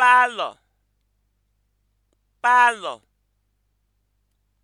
palọ palọ